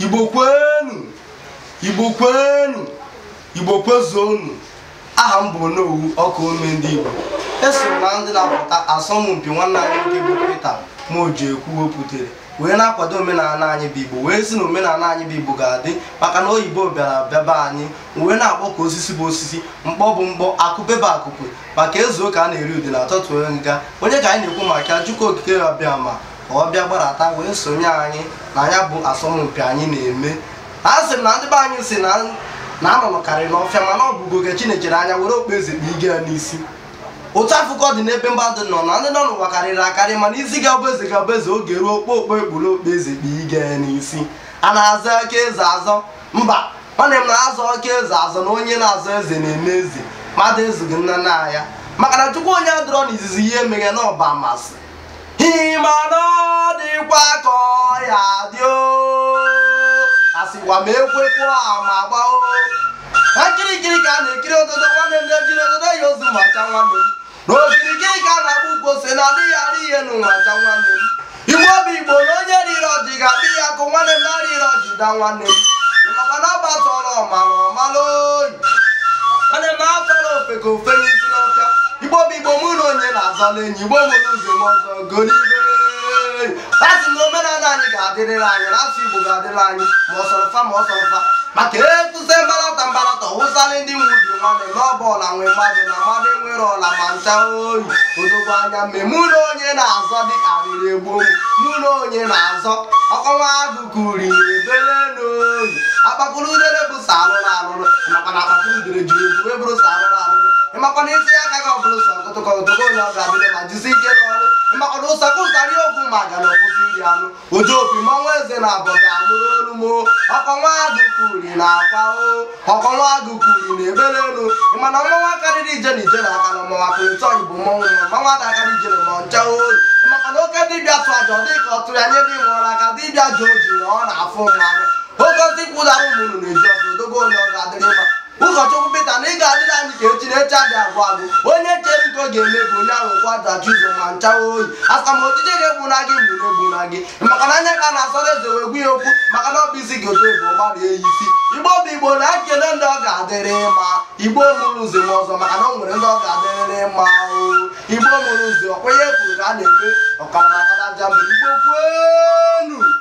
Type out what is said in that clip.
igbo kwenu igbo kwenu igbo kwezuonu aha m bụ onowu ọkụ ome ndị igbo eso na ndị na-apụta asọmpi nwanne anyị nwoke bụ Peter Mojiekwu wepụtara wee na-akwado omenala anyị bụ igbo wee si na omenala anyị bụ igbo ga-adị maka na oyibo bịara bịaba anyị wee na-akpọ ka osisi bụ osisi mkpọ bụ mkpọ akụpebe akụkụ maka ezu ụka a na-eri ude na atọtụ nga onye ka anyị na-ekwu maka ya Chukwu okike ya bịa ma ọ bịa gbarata wee sonye anyị na anya bụ asọmpi anyị na-eme a sị na ndị be anyị si na anọnọkarị n'ọfịa mana ọ bụgo oge chinechere anya were okpu eze kpa ige ya n'isi otu afụkọ dị n'ebe mba dị nọ na ndị nọ n'ụwa karịrị akarị mana isi ga ọbụ eze ga bụ eze oge ruo okpokpo ekpuru okpu eze kpa ige ya n'isi a na-azọ akaeze eze azọ mba nwanne m na-azọ aka eze azọ na onye na-azọ eze na-eme eze mmadụ ezughị nna nna ya maka na chukwu onye adọrọ n'izizi ihe emeghe na ọba amasị ịma na ọ dịkwa ka o asịkwa ma ekwekwa ama gbao na nkirikiri ka a na-ekiri ododo nwanne nne jiri ododo ya ozu nwacha nwanne m na okirikiri ka a na-agba ukwu ose na adịghị arị ihe nụ nwacha nwanne m igwe obi igbo na onye riri ọjị ga-akpị ya akụ nwanne m na arịrị ọjị da nwanne m ịmakwa na ọ gbatọrọ ọmara ọmara oyi nwanne m na-atọrọ ofe ka ofe obi igbo mụ na onye na-azala enyi igbo nwere ụzọ m ọzọ golibe asị na omenala anyị ga-adịrịrị anyị na asụ igbo ga-adịrị anyị ma ọsọrọfa ma ọsọrọfa maka etụsa mbalata mbalata wụsala ndị nwe nwubi nwanne na ọba ọla nwee mmadụ na mmadụ nwere ọla ma ncha oyi odogbo anya mme mụ onye na-azọ dị arịrị gboo mụ na onye na-azọ ọkọnwa agụ kuri ebele n'oyi akpakpụrụ udere bụ sa alụrụ alụrụ nakwa na akpakpụrụ udere juru eju wee sa alụrụ alụrụ ịmakwana isi aka agaghị ọbụrụ ụsọ nkụtụkọ ụtụkọ onye ọ ga-abịa ma jizi ike n'ọrụ maka na ụsakụ ụtarị okwu ma ga na ọkwụsị iri anụ oju opi mmanwụ eze na abọga anụrụ olu mo ọkọnwa agụkwuri na akwa o ọkọnwa agụkwuri na ebere elu mana mmanwụ akarịrị ije na ije na aka na mmanwụ akụrụ tọ igbo mmanwụ mmanwụ adakarị ije na ọncha oyi maka na oke dibịa tụ aja dị ka ọ tụrụ anya dị nwụrụ aka dibịa ji oji na ọ na-afụ mmanwụ oke ndị kwụdara ụmụnụ na-eji ọkụ dogo onye ọ ga-adịrị mma ụkọchukwu peter na ị ga-adịrị anyị ka echi na echi adị agwụ agụ onye chere nke ọ ga-eme ka onye ahụ kwata ụzọ ma nchawa oyi asamojije ga na gị mgbe na-egbuna gị maka na anya ka na-asọrọ eze wee gwu ya okwu maka na ọ bụ isi gị otu bụ gbara eyi isi igbo bụ igbo na ekele ndị ọ ga-adịrị mma igbo mụrụ ụzọ m ọzọ maka na ọ nwere ndị ọ ga-adịrịrị mma igbo mụrụ ụzọ ọkwenye kwuru ka a na-eme ọkara na akara jambụ igbo kwenu